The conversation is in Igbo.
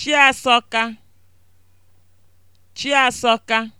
chiasoka. chiasoka.